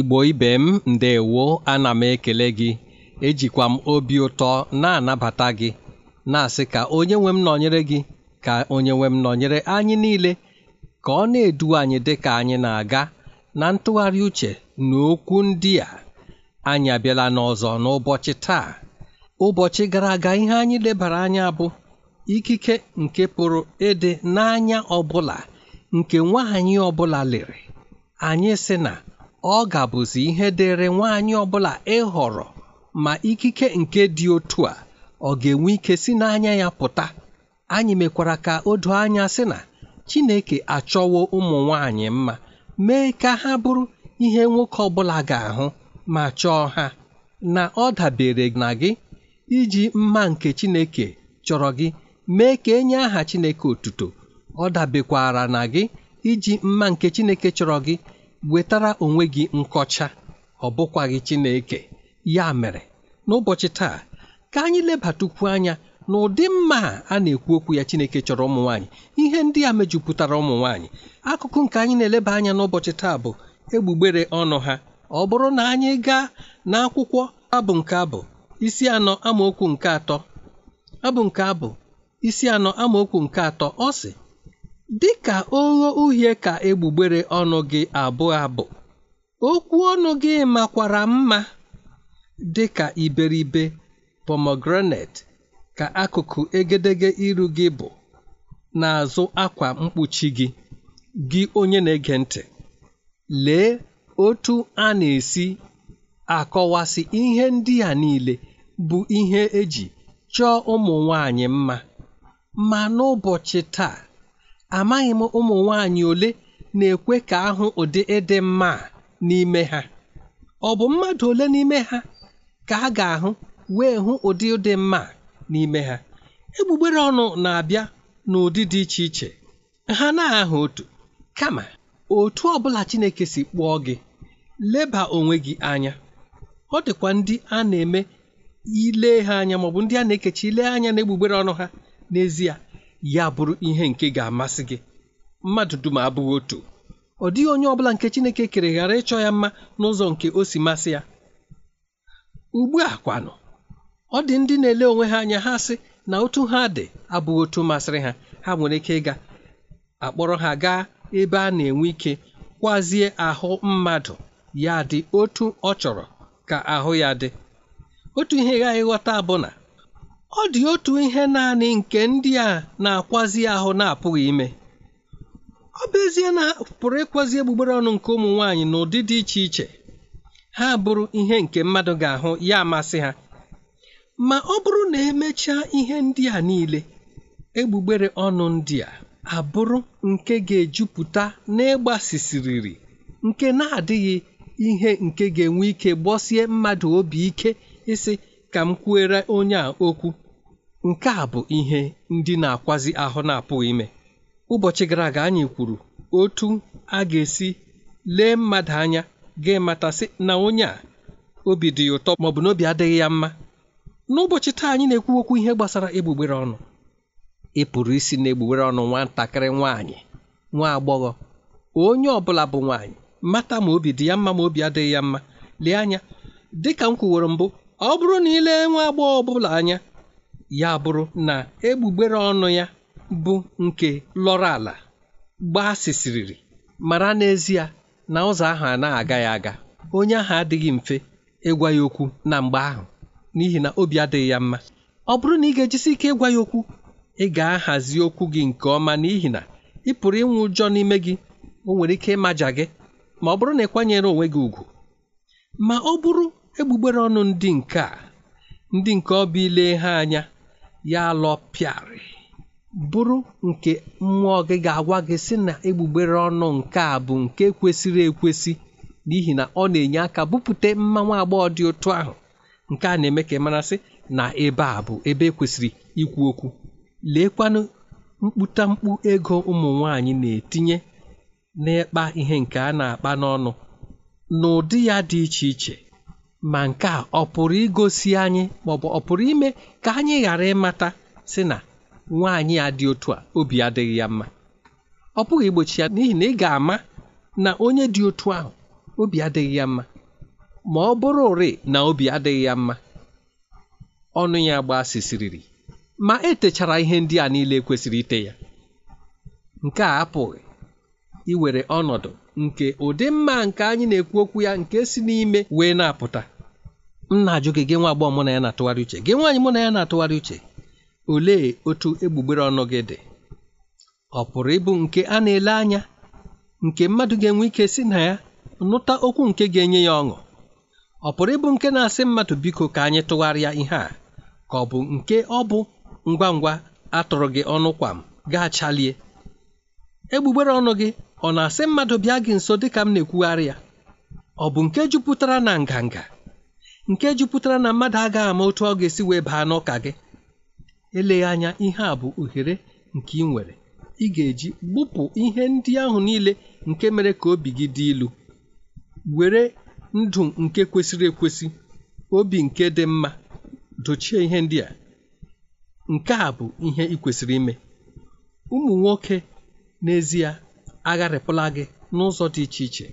igbo ibe m ndewo ana m ekele gị ejikwa m obi ụtọ na-anabata gị na-asị ka onye nwe m nọnyere gị ka onye nwe m nọnyere anyị niile ka ọ na-edu anyị dị ka anyị na-aga na ntụgharị uche na okwu ndị a anyị abịala n'ọzọ n'ụbọchị taa ụbọchị gara aga ihe anyị lebara anya bụ ikike nke pụrụ ịdị n'anya ọbụla nke nwaanyị ọbụla lere anyị sị na ọ ga gabụzi ihe dịịrị nwaanyị ọbụla ịhọrọ ma ikike nke dị otu a ọ ga-enwe ike si n'anya ya pụta anyị mekwara ka o doo anya sị na Chineke achọwo ụmụ nwaanyị mma mee ka ha bụrụ ihe nwoke ọbụla ga-ahụ ma chọọ ha na ọ dabere na gị iji mma nke Chineke chọrọ gị mee ka enye aha Chineke otuto ọ dabekwara na gị iji mma nke Chineke chọrọ gị wetara onwe gị nkọcha ọ bụkwaghị Chineke ya mere n'ụbọchị taa ka anyị lebatukwu anya na ụdị mma a na-ekwu okwu ya Chineke chọrọ ụmụ nwaanyị ihe ndị a mejupụtara ụmụ nwaanyị akụkụ nke anyị na-eleba anya n'ụbọchị taa bụ egbugbere ọnụ ha ọ bụrụ na anyị gaa n'akwụkwọ abụ nke abụ isi anọ amaokwu nke atọ abụ nke abụ isi anọ amaokwu nke atọ ọ si Dịka ogho uhie ka egbugbere ọnụ gị abụọ abụ, okwu ọnụ gị makwara mma dị ka iberibe pomegranate ka akụkụ egedege iru gị bụ n'azụ akwa mkpuchi gị. Gị onye na-ege ntị, lee otu a na-esi akọwasị ihe ndị a niile bụ ihe eji chọọ ụmụ nwanyị mma. Ma n'ụbọchị taa amaghị m ụmụ nwanyị ole na-ekwe ka ahụ ụdị ịdị mma n'ime ha ọ bụ mmadụ ole n'ime ha ka a ga-ahụ wee hụ ụdị dị mma n'ime ha egbugbere ọnụ na-abịa n'ụdị dị iche iche ha na ahụ otu kama otu ọbụla Chineke si kpụọ gị leba onwe gị anya ọ dịkwa ndị a na-eme ile ha anya maọbụ ndị a na-ekechi ile anya na egbugbere ọnụ ha n'ezie ya bụrụ ihe nke ga-amasị gị mmadụ dum abụghị otu ọ dịghị onye ọbụla nke Chineke kere ghara ịchọ ya mma n'ụzọ nke o si masị ya ugbu a kwanụ ọ dị ndị na-ele onwe ha anya ha sị na otu ha dị abụghị otu masịrị ha ha nwere ike ịga akpọrọ ha gaa ebe a na-enwe ike kwazie ahụ mmadụ ya dị otu ọ chọrọ ka ahụ ya dị otu ihe ghaghị ghọta bụ na ọ dị otu ihe naanị nke ndị a na-akwazi ahụ na-apụghị ime ọ bụ ezie na pụrụ ịkwazi egbugbere ọnụ nke ụmụ nwaanyị n'ụdị dị iche iche ha bụrụ ihe nke mmadụ ga-ahụ ya amasị ha ma ọ bụrụ na emechaa ihe ndị a niile egbugbere ọnụ ndị a abụrụ nke ga-ejupụta n'ịgbasisiriri nke na-adịghị ihe nke ga-enwe ike gbọsie mmadụ obi ike ịsị ka m kwuere onye a okwu nke a bụ ihe ndị na-akwazi ahụ na-apụghị ime ụbọchị gara aga anyị kwuru otu a ga-esi lee mmadụ anya ga-ematasị na onye a obi dị ya ụtọ maọbụ na obi adịghị ya mma n'ụbọchị taa anyị na-ekwu okwu ihe gbasara egbugbere ọnụ ị pụrụ isi na egbugbere ọnụ nwatakịrị nwaanyị nwa agbọghọ onye ọ bụla bụ nwaanyị mata ma obi dị ya mma ma obi adịghị ya mma lee anya dịka m kwuworo mbụ ọ bụrụ na ị lee nwa agbọghọ ọbụla anya ya bụrụ na egbugbere ọnụ ya bụ nke lọrọ ala gbasịsịrịrị mara n'ezie na ụzọ ahụ a na-aga ya aga onye ahụ adịghị mfe ịgwa ya okwu na mgbe ahụ n'ihi na obi adịghị ya mma ọ bụrụ na ị ga-ejisi ike ịgwa ya okwu ị ga-ahazi okwu gị nke ọma n'ihi na ị pụrụ ịnwụ ụjọ n'ime gị o nwere ike ịmaja gị ma ọ bụrụ na ị kwanyere onwe gị ùgwù ma ọ bụrụ egbugbere ọnụ ndị nke a ndị nke ọbụ ile ha anya ya lọpịarị bụrụ nke mmụọ gị ga-agwa gị sị na egbugbere ọnụ nke a bụ nke kwesịrị ekwesị n'ihi na ọ na-enye aka bupute mmanwu agbọghọ dị otu ahụ nke a na-eme ka ị mara sị na ebe a bụ ebe ekwesịrị ikwu okwu leekwanụ mkputamkpu ego ụmụ nwanyị na-etinye n'ịkpa ihe nke a na-akpa n'ọnụ n'ụdị ya dị iche iche ma nke a ọ pụrụ igosi anyị maọbụ ọ pụrụ ime ka anyị ghara ịmata si na nwaanyị a dị otu a obi adịghị ya mma ọ pụghị igbochi ya n'ihi na ị ga-ama na onye dị otu ahụ obi adịghị ya mma ma ọ bụrụ ụrị na obi adịghị ya mma ọnụ ya sisiriri ma etechara ihe ndị a niile kwesịrị ite ya nke a apụghị iwere ọnọdụ nke ụdị mma nke anyị na-ekwu okwu ya nke si n'ime wee na-apụta m na-ajụ gị gị nwa agbọghọ mụ na ya na-atụgharị uche gị nwaanyị mụ na ya na-atụgharị uche olee otu egbugbere ọnụ gị dị ọ pụrụ ịbụ nke a na-ele anya nke mmadụ ga-enwe ike si na ya nụta okwu nke ga-enye ya ọṅụ ọ pụrụ ịbụ nke na-asị mmadụ biko ka anyị tụgharịa ihe a ka ọ bụ nke ọ bụ ngwa ngwa atụrụ gị ọnụ kwa m gaa chalie egbugbere ọnụ gị ọ na-asị mmadụ bịa gị nso dị ka m na-ekwugharị ya ọ bụ nke jupụtara na nganga nke jupụtara na mmadụ agaghị ama otu ọ ga-esi wee baa n'ụka gị eleghị anya ihe a bụ ohere nke ị nwere ị ga-eji gbupụ ihe ndị ahụ niile nke mere ka obi gị dị ilu were ndụ nke kwesịrị ekwesị obi nke dị mma dochie ihe ndị a nke a bụ ihe ị kwesịrị ime ụmụ nwoke n'ezie agharịpụla gị n'ụzọ dị iche iche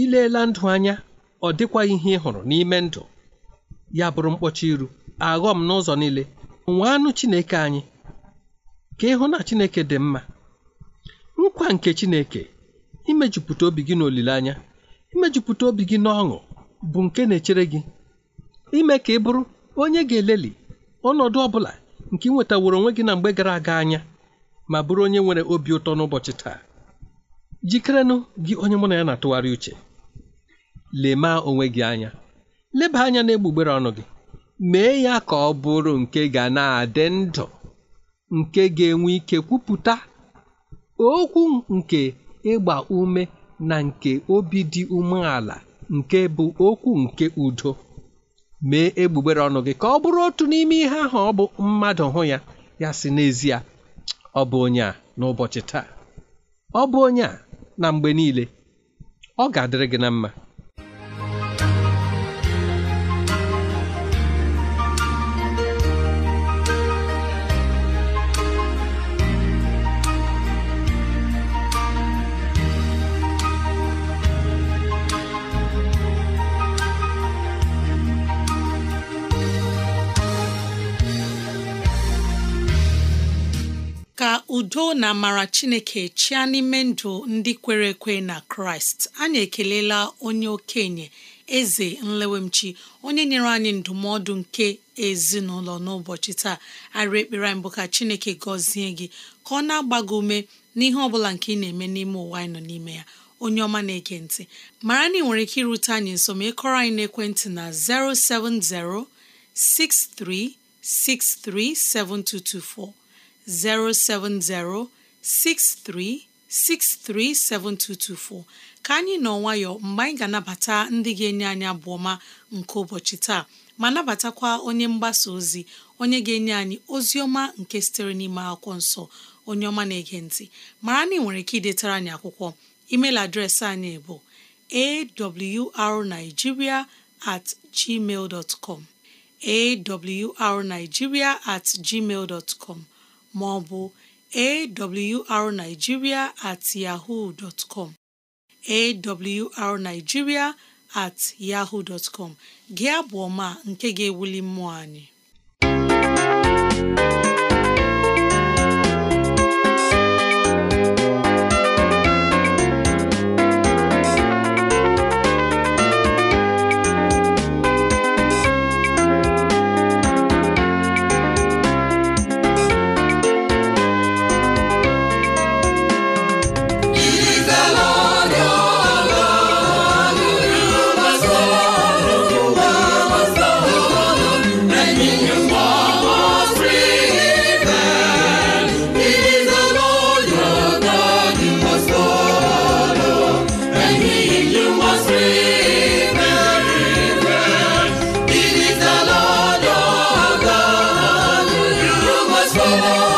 ileela ndụ anya ọ dịkwaghị ihe ị hụrụ n'ime ndụ ya bụrụ mkpọcha iru aghọm n'ụzọ niile nwee anụ Chineke anyị ka ịhụ na Chineke dị mma nkwa nke Chineke imejupụta obi gị n'olileanya imejupụta obi gị n'ọṅụ bụ nke na-echere gị ime ka ị bụrụ onye ga-eleli ọnọdụ ọ bụla nke ị nwetaworo onwe gị na mgbe gara aga anya ma bụrụ onye nwere obi ụtọ n'ụbọchị taa jikerenụ gị onye mụ na ya na-atụgharị uche lema onwe gị anya leba anya na egbugbere ọnụ gị mee ya ka ọ bụrụ nke ga na-adị ndụ nke ga-enwe ike kwupụta okwu nke ịgba ume na nke obi dị umeala nke bụ okwu nke udo mee egbugbere ọnụ gị ka ọ bụrụ otu n'ime ihe ahụ ọ bụ mmadụ hụ ya ya si n'ezie ọ bụ onye a n'ụbọchị taa ọ bụ onye a na mgbe niile ọ ga-adịrị gị na mma udo na amara chineke chịa n'ime ndụ ndị kwere ekwe na kraịst anyị ekelela onye okenye eze nlewemchi onye nyere anyị ndụmọdụ nke ezinụlọ n'ụbọchị taa arị ekpere mbụ bụ ka chineke gọzie gị ka ọ na agbago ume n'ihe ọ bụla nke ị na-eme n'ime ụwa anyị nọ n'ime ya onye ọma na-ege ntị mara na ị nwere ike irute anyị nso ma ịkọrọ anyị n'ekwentị na 070 6363 7224 07063637224 ka anyị nọ nwayọ mgbe anyị ga-anabata ndị ga-enye anyị abụọma ọma nke ụbọchị taa ma nabatakwa onye mgbasa ozi onye ga-enye anyị ozi ọma nke sitere n'ime akwụkwọ nsọ onye ọma na-ege ntị mara na ị nwere ike idetara anyị akwụkwọ email adreesị anyị bụ arigiria at gmail com awrnigeria at gmail com maọbụ ọ bụ at yahoo dot com awrnigeria at yahoo dot gị abụ ọma nke ga-ewuli mmụọ anyị solo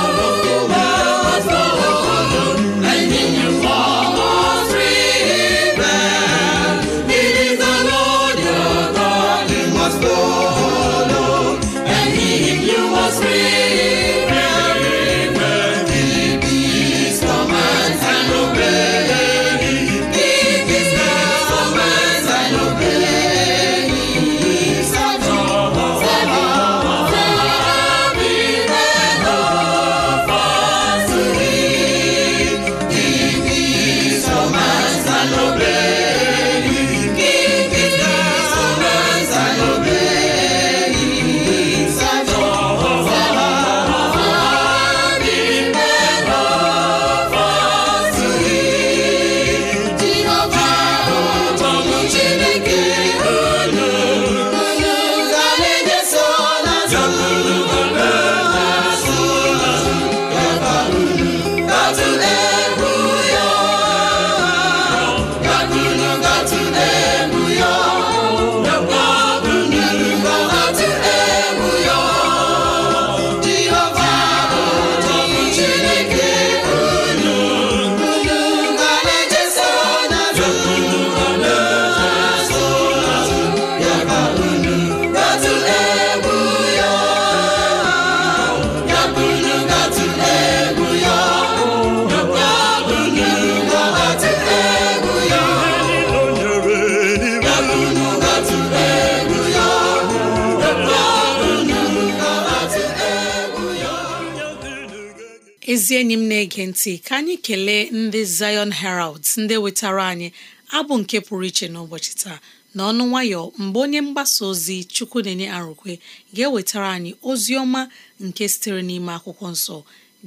ezi enyi m na-ege ntị ka anyị kelee ndị Zion Herald ndị wetara anyị abụ nke pụrụ iche n'ụbọchị taa na ọnụ nwayọ mgbe onye mgbasa ozi chukwu na-enye arụkwe ga-ewetara anyị ozi ọma nke sitere n'ime akwụkwọ nsọ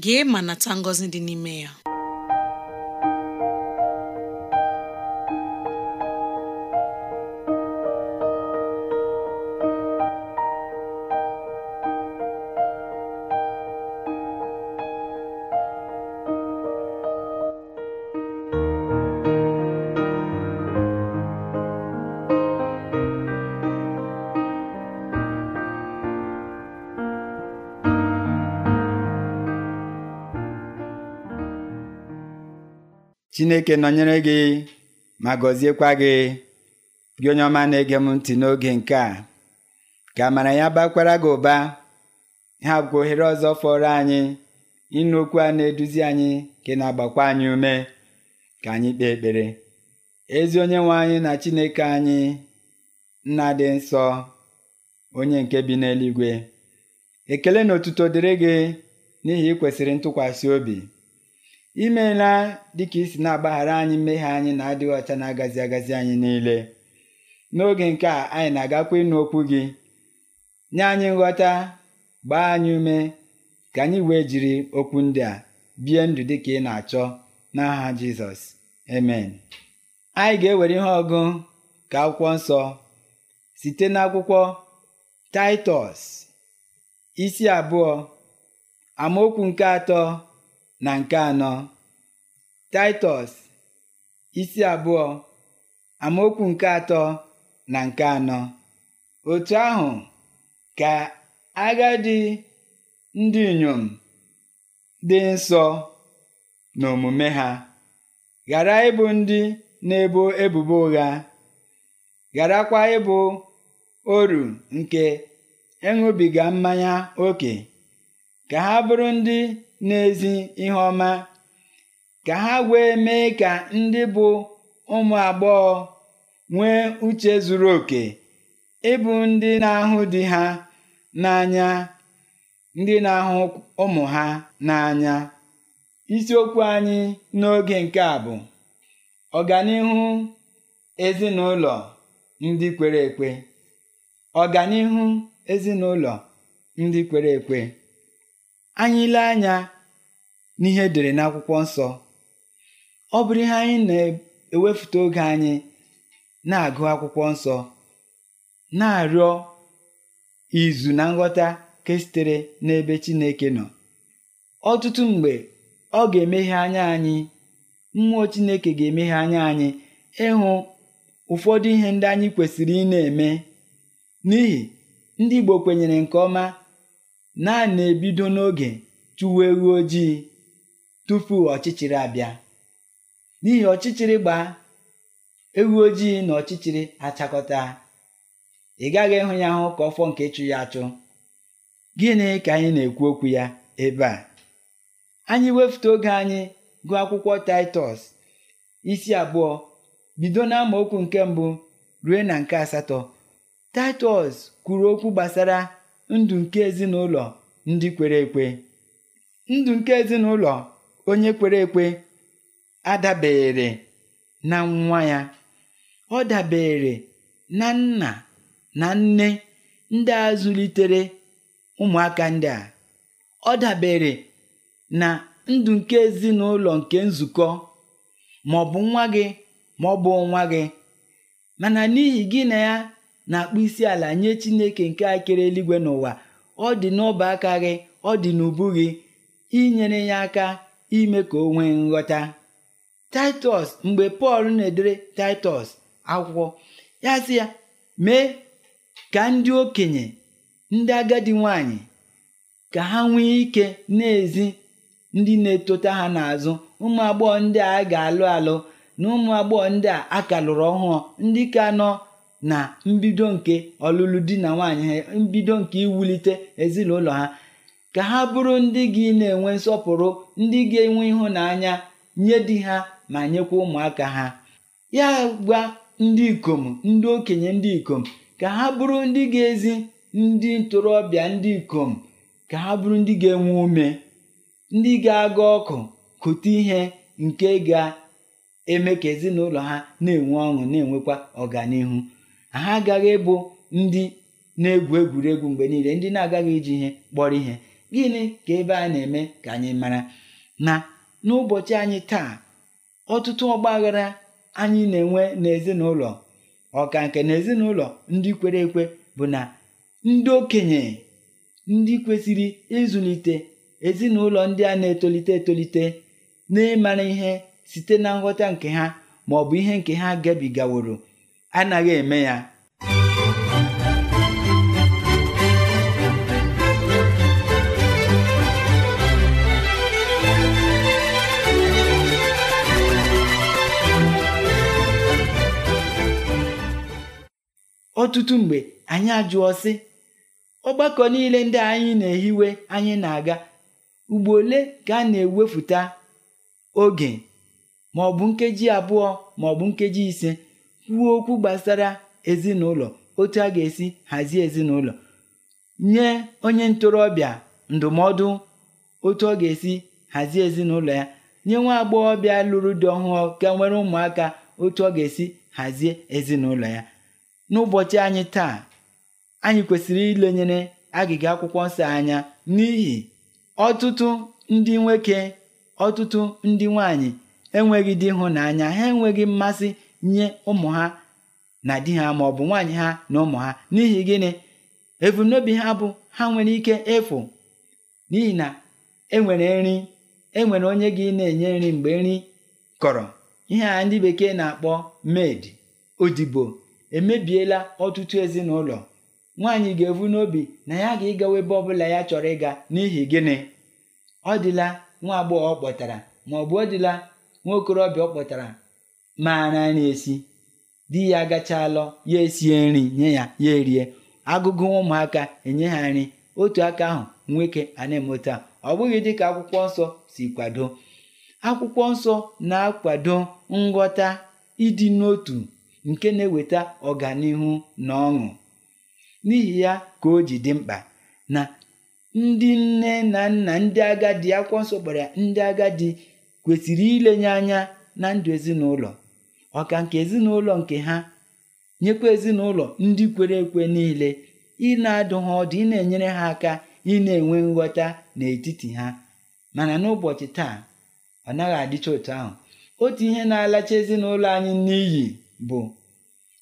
gee ma nata ngọzi dị n'ime ya chineke nọnyere gị ma gọziekwa gị gị onye ọma na-ege m ntị n'oge nke a ka amara ya bakwara gị ụba ha bụkwa ohere ọzọ fọrọ anyị ịnụ okwu a na-eduzi anyị nke na-agbakwa anyị ume ka anyị kpee ekpere ezi onye nwe anyị na chineke anyị nna dị nsọ onye nke bi n'eluigwe ekele na otuto dịrị gị n'ihi ị kwesịrị ntụkwasị obi imeela dịka isi na-agbaghara anyị mmehie anyị na-adịghị ọcha na-agazi agazi anyị niile n'oge nke a anyị na-agakwa ịnụ okwu gị nye anyị nghọta gbaa anyị ume ka anyị wee jiri okwu ndị a bie ndụ dị ka ị na-achọ n'aha Jizọs amen anyị ga-ewere ihe ọgụ ka akwụkwọ nsọ site n'akwụkwọ Taịtọs isi abụọ amaokwu nke atọ na nke anọ Taịtọs isi abụọ amaokwu nke atọ na nke anọ otu ahụ ka agadi ndị inyom dị nsọ n'omume ha ghara ịbụ ndị na-ebo ebubo ụgha gharakwa ịbụ oru nke ịṅụbiga mmanya ókè ka ha bụrụ ndị n'ezi ihe ọma ka ha wee mee ka ndị bụ ụmụ agbọghọ nwee uche zuru oke ịbụ ndị na-ahụ di ha n'anya ndị na-ahụ ụmụ ha n'anya isiokwu anyị n'oge nke a bụ ọganihu ezinụlọ ndị kwere ekwe ọganihu ezinụlọ ndị kwere ekwe anyị ile anya n'ihe edere n'akwụkwọ nsọ ọ bụrụ ihe anyị na-ewepụta oge anyị na-agụ akwụkwọ nsọ na-arịọ izu na nghọta nke sitere n'ebe Chineke nọ ọtụtụ mgbe ọ ga-emeghe anya anyị mmụọ Chineke ga-emeghe anya anyị ịhụ ụfọdụ ihe ndị anyị kwesịrị ị na-eme n'ihi ndị Igbo kwenyere nke ọma naanị na-ebido n'oge chụwa ewu ojii tupu ọchịchịrị abịa n'ihi ọchịchịrị gbaa ewu ojii na ọchịchịrị achakọta ị gaghị ịhụ ya hụ ka ọfọ nke ịchụ ya achụ gịnị ka anyị na-ekwu okwu ya ebe a anyị wefute oge anyị gụọ akwụkwọ taịtọs isi abụọ bido na okwu nke mbụ rue na nke asatọ taịtọs kwuru okwu gbasara ndụ nke ezinụlọ ndị kwere ekwe ndụ nke ezinụlọ onye kwere ekwe adabere na nwa ya ọ dabere na nna na nne ndị a zụlitere ụmụaka ndị a ọ dabere na ndụ nke ezinụlọ nke nzukọ ma ọ bụ nwa gị ma ọ bụ nwa gị mana n'ihi gị na ya na akpụ isi ala nye Chineke nke akịrị eluigwe n'ụwa ọ dị n'ọba aka gị ọ dị n'ubu gị inyere ya aka ime ka o nwee nghọta Taịtọs mgbe Pọl na-edere Taịtọs akwụkwọ ya sị ya mee ka ndị okenye ndị agadi nwanyị ka ha nwee ike n'ezi ndị na-etota ha n'azụ ụmụ agbọghọ ndị a ga-alụ alụ na ụmụ agbọghọ ndị a aka lụrụ ọhụụ ndị ka nọ na mbido nke ọlụlụ di na nwaanyị ha mbido nke iwulite ezinụlọ ha ka ha bụrụ ndị gị na-enwe nsọpụrụ ndị ga-enwe ịhụnanya nye di ha ma nyekwa ụmụaka ha ya gwa ndị ikom ndị okenye ndị ikom ka ha bụrụ ndị ga-ezi ndị ntorobịa ndị ikom ka ha bụrụ ndị ga-enwe ume ndị ga-aga ọkụ kụta ihe nke ga-eme ka ezinụlọ ha na-enwe ọṅụ na-enwekwa ọganihu ha agaghị ịbụ ndị na-egwu egwuregwu mgbe niile ndị na-agaghị iji ihe kpọrọ ihe gịnị ka ebe a na-eme ka anyị mara na n'ụbọchị anyị taa ọtụtụ ọgbaghara anyị na-enwe n'ezinụlọ ọka nke na ezinụlọ ndị kwere ekwe bụ na ndị okenye ndị kwesịrị ịzụlite ezinụlọ ndị a na-etolite etolite na ịmara ihe site na nghọta nke ha ma ọ bụ ihe nke ha gabigaworo anaghị eme ya ọtụtụ mgbe anyị ajụọ sị ọgbakọ niile ndị anyị na-ehiwe anyị na-aga ugbo ole ka a na-ewefụta oge ma ọ bụ nkeji abụọ ma bụ nkeji ise kwuo okwu gbasara ezinụlọ otu a ga-esi hazie ezinụlọ nye onye ntorobịa ndụmọdụ otu ọ ga-esi hazie ezinụlọ ya nye nwa agbọghọbịa lụrụ di ọhụrụ ka nwere ụmụaka otu ọ ga-esi hazie ezinụlọ ya n'ụbọchị anyị taa anyị kwesịrị ilenyere agịga akwụkwọ nsọ anya n'ihi ọtụtụ ndị nwoke ọtụtụ ndị nwanyị enweghị dị ịhụnanya ha enweghị mmasị nye ụmụ ha na di ha ma ọ bụ nwaanyị ha na ụmụ ha n'ihi gịnị ebumnobi ha bụ ha nwere ike ịfụ n'ihi na enwere nri enwere onye gị na-enye nri mgbe nri kọrọ ihe a ndị bekee na-akpọ med odibo emebiela ọtụtụ ezinụlọ nwaanyị ga-ebu n'obi na ya ga-ịgawa ebe ọbụla ya chọrọ ịga n'ihi gịnị ọ dịla nwa agbọghọ ọ kpọtara ma ọ bụ ọ dịla nwa okorobịa ọ kpọtara maara nri esi di ya gachalọ ya esie nri nye ya ya erie agụgụ ụmụaka enye ha nri otu aka ahụ nwoke ana emota ọ bụghị dịka akwụkwọ nsọ si kwado akwụkwọ nsọ na-akwado nghọta ịdị n'otu nke na-eweta ọganihu na ọṅụ n'ihi ya ka o ji dị mkpa na ndị nne na nna ndị agadi akwụkwọ nsọ gbara ndị agadi kwesịrị ilenye anya na ndụ ezinụlọ ọka nke ezinụlọ nke ha nyekwa ezinụlọ ndị kwere ekwe niile ị na-adụ ha ọdụ ị na-enyere ha aka ị na-enwe nghọta n'etiti ha mana n'ụbọchị taa ọ naghị adịcha otu ahụ otu ihe na-alacha ezinụlọ anyị n'iyi bụ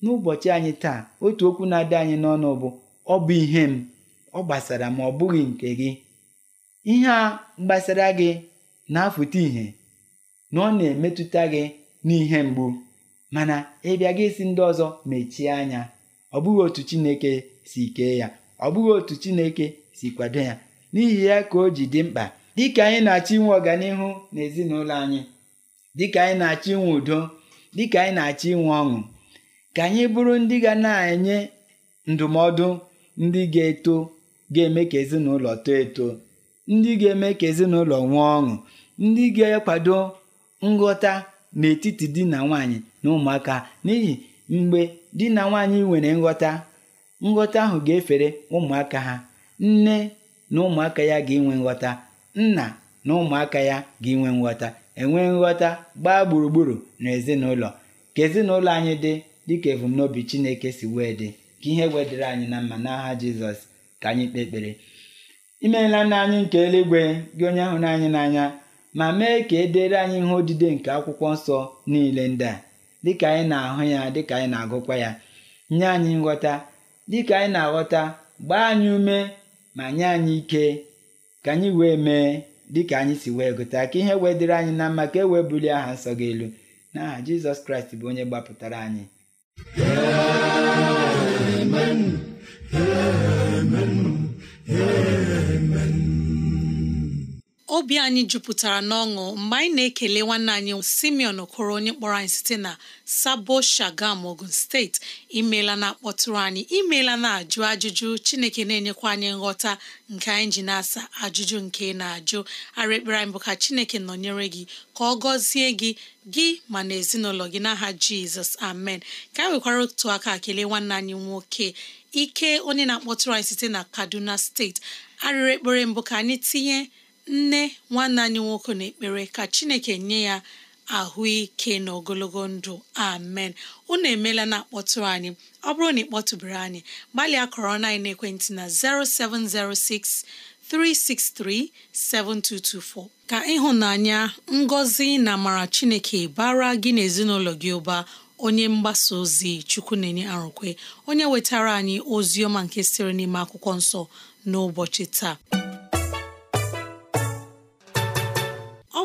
n'ụbọchị anyị taa otu okwu na-adị anyị n'ọnụ bụ ọ bụ ihe m ọ gbasara ma ọ bụghị nke gị ihe a gbasara gị na-afụta ihe na ọ na-emetụta gị n'ihe mgbu mana ịbịa gị isi ndị ọzọ mechie anya ọ bụghị otu Chineke si kee ya ọ bụghị otu Chineke si kwado ya n'ihi ya ka o ji dị mkpa dịka anyị na-achọ inwe ọganihu ezinụlọ anyị dịka anyị na-achọ inwe udo dịka anyị na-achọ inwe ọṅụ ka anyị bụrụ ndị ga na-enye ndụmọdụ ndị ga-eto ga-eme ka ezinụlọ too eto ndị ga-eme ka ezinụlọ nwee ọṅụ ndị ga-ekwado nghọta n'etiti di na nwanyị na ụmụaka n'ihi mgbe di na nwaanyị nwere nghọta nghọta ahụ ga-efere ụmụaka ha nne na ụmụaka ya ga-enwe nghọta nna na ụmụaka ya ga-enwe nghọta enwe nghọta gbaa gburugburu na ezinụlọ ka ezinụlọ anyị dị dịka ebumnobi Chineke si wee dị ka ihe wedịre anyị na mma n'aha Jizọs ka anyị kpee ekpere imeela nna anyị nke eluigwe gị onye ahụ n'anyị n'anya ma mee ka e dere anyị ihe odide nke akwụkwọ nsọ niile ndị a dịka anyị na-ahụ ya dịka anyị na-agụkwa ya nye anyị nghọta dịka anyị na-aghọta gbaa anyị ume ma nye anyị ike ka anyị wee mee dịka anyị si wee gụta ka ihe wee dịrị anyị na mma ka e wee bulie aha nsọ gị elu n'aha Jizọs Kraịst bụ onye gbapụtara anyị obi anyị jupụtara n'ọṅụ mgbe anyị na-ekele nwanne anyị Simeon Okoro onye kpọrọ anyị site na Sabo Shagam Ogun steeti imeela na-akpọtụrụ anyị imeela na-ajụ ajụjụ Chineke na-enyekwa anyị nghọta nke anyị ji na-asa ajụjụ nke na-ajụ arịekpere anyị bụ ka Chineke nọnyere gị ka ọ gọzie gị gị ma na ezinụlọ gị n'aha Jizọs amen ka anyị nwekwara otu aka kele nwanne anyị nwoke ike onye na-akpọtụrụ anyị site na Kaduna steeti arịrị ekpere mbụ ka anyị tinye nne nwanne anyị nwoke na-ekpere ka chineke nye ya ahụike na ogologo ndụ amen unu emela na akpọtụrụ anyị ọ bụrụ na ị anyị gbalịa kọrọ na ekwentị na 0706 7224 ka ịhụnanya ngọzi na amara chineke bara gị na ezinụlọ gị ụba onye mgbasa ozi chukwu na-enye arụkwe onye wetara anyị ozi ọma nke sịrị n'ime akwụkwọ nsọ n'ụbọchị taa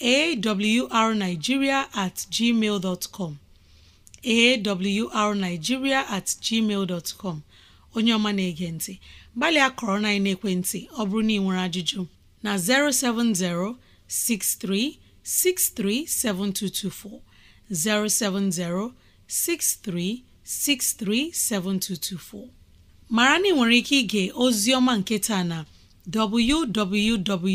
awrnigeria at gmail dot com awrnigeria at gmail dot com onye ọma na-ege ntị gbalịa kọrọ na ekwentị ọ bụrụ na ị nwere ajụjụ na 07063637224 07063637224 mara na ị nwere ike ige ozi ọma nke taa na www.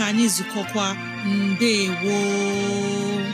ka anyị zukọkwa mbe woo